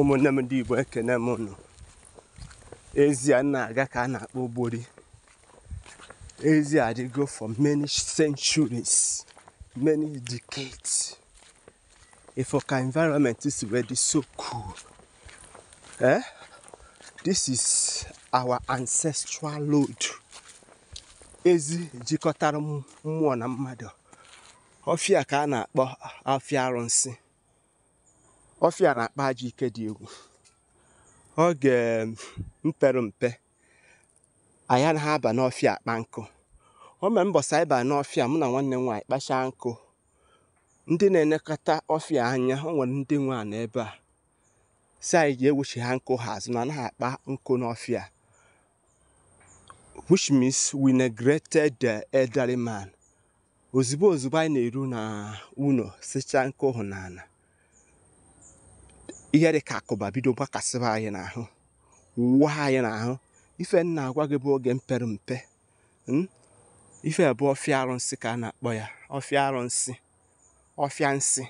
ụmụnne m ndị Igbo ekene m unu ezie na-aga ka a na-akpọ ogbori ezie adịgo for many centuries many decades ifoka environment is so cool eh? this is our ancestral load ezi jikọtara mmụọ na mmadụ ọfịa ka a na-akpọ afịa arụsị ọfịa na-akpa ajị ike dị egwu oge um, mpere mpe na ha aba n'ọfịa akpa nkụ o mere ịba n'ọfịa mụ na nwanne m nwaanyị kpachaa nkụ ndị na-elekọta ọfịa anya o nwere ndị nwe ebe a si anyị ga-ewuchi ha nkụ ha azụ na anaghị akpa nkụ n'ọfịa which means we neglected the elderly man ozugbo ozugbo anyị na-eru na uno sichaa nkụ hụ n'ala ihe dị ka akụba bido gbakasịba anyị n'ahụ wụwa anyị n'ahụ ife nna agwa gị bụ oge mpere mpe hmm? ife bụ ọfịa arụsị ka a na-akpọ ya ọfịa arụsị ọfịa nsị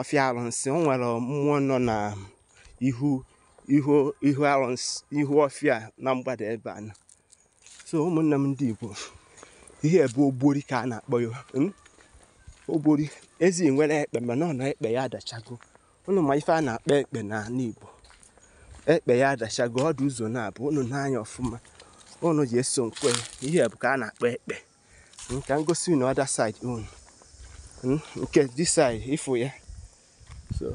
ọfịa arụsị o nwere mmụọ nọ na ihu ihu ihu arụsị ihu ọfịa na mgbada ebe a so ụmụnne m ndị Igbo ihe bụ ogbori ka a na-akpọ ya hmm? ogbori ezi nwere ekpe mana ọ na ekpe ya adachago unu ma ife a na-akpa ekpe n'ala Igbo ekpe ya adachago ọdụ ụzọ na-abụ unu n'anya ọfụma unu ji eso nkwe ihe bụ ka a na-akpa ekpe hm, ka ngosi unu ọda saịdị unu hm, nke dis side ifu ya so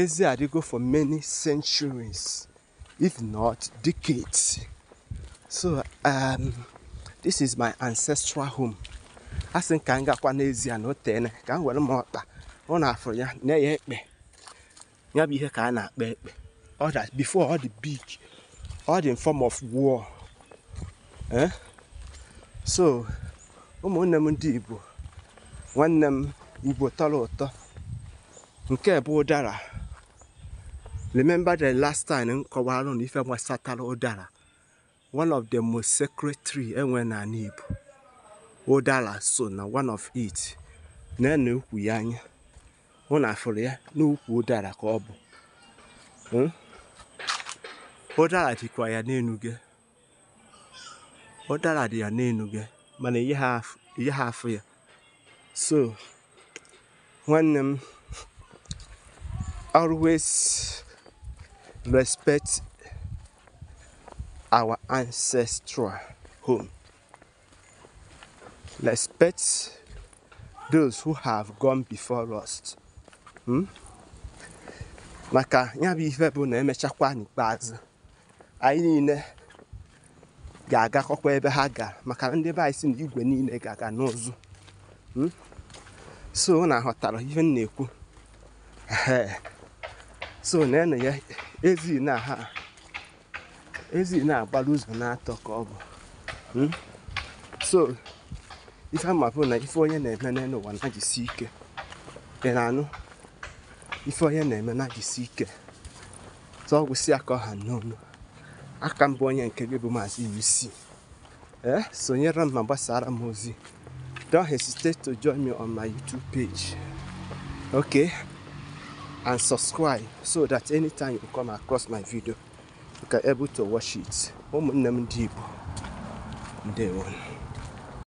ezi adịgo for many centuries if not decades so um, this is my ancestral home asị m ka m gakwa n'ezie na o ka m were m ọkpa ọ na-afụrụ ya na ya ekpe ya bụ ihe ka a na akpọ ekpe ọ dị before ọ dị big ọ dị in form of so ụmụnne m ndị Igbo nwanne m Igbo tọrọ ụtọ nke bụ ụdara remember the last time m kọwara na ife ụdara one of the most sacred tree enwe n'ala Igbo ụdara so na one of it na anya hụ na afụrụ ya n'ukwu ụdara ka ọ bụ ụdara dịkwa ya n'enu gị ụdara dị ya n'enu gị mana ihe ha afụ ya so nwanne m always respect our ancestral home. Respect those who have gone before us. Hmm? maka ya bụ ihe bụ na emechakwa n'ikpeazụ anyị niile ga-agakọkwa ebe ha ga maka ndị be anyị si na igwe niile ga-aga n'ụzụ hmm? so na ghọtara ihe m na-ekwu so na ene ya ezi na ha ezi na-agbara ụzọ na-atọ ka ọ bụ hmm? so ife ama bụ na ife onye na-eme n'ụwa na ike ị na-anụ ife onye na-eme na jisi ike tụọ gwụsị aka ọha n'onu aka mbụ onye nke gị bụ maazị UC ee sonyere m ma gbasara m ozi don't hesitate to join me on my YouTube page okay and subscribe so that anytime you come across my video you can able to watch it ụmụnne m ndị Igbo ndewo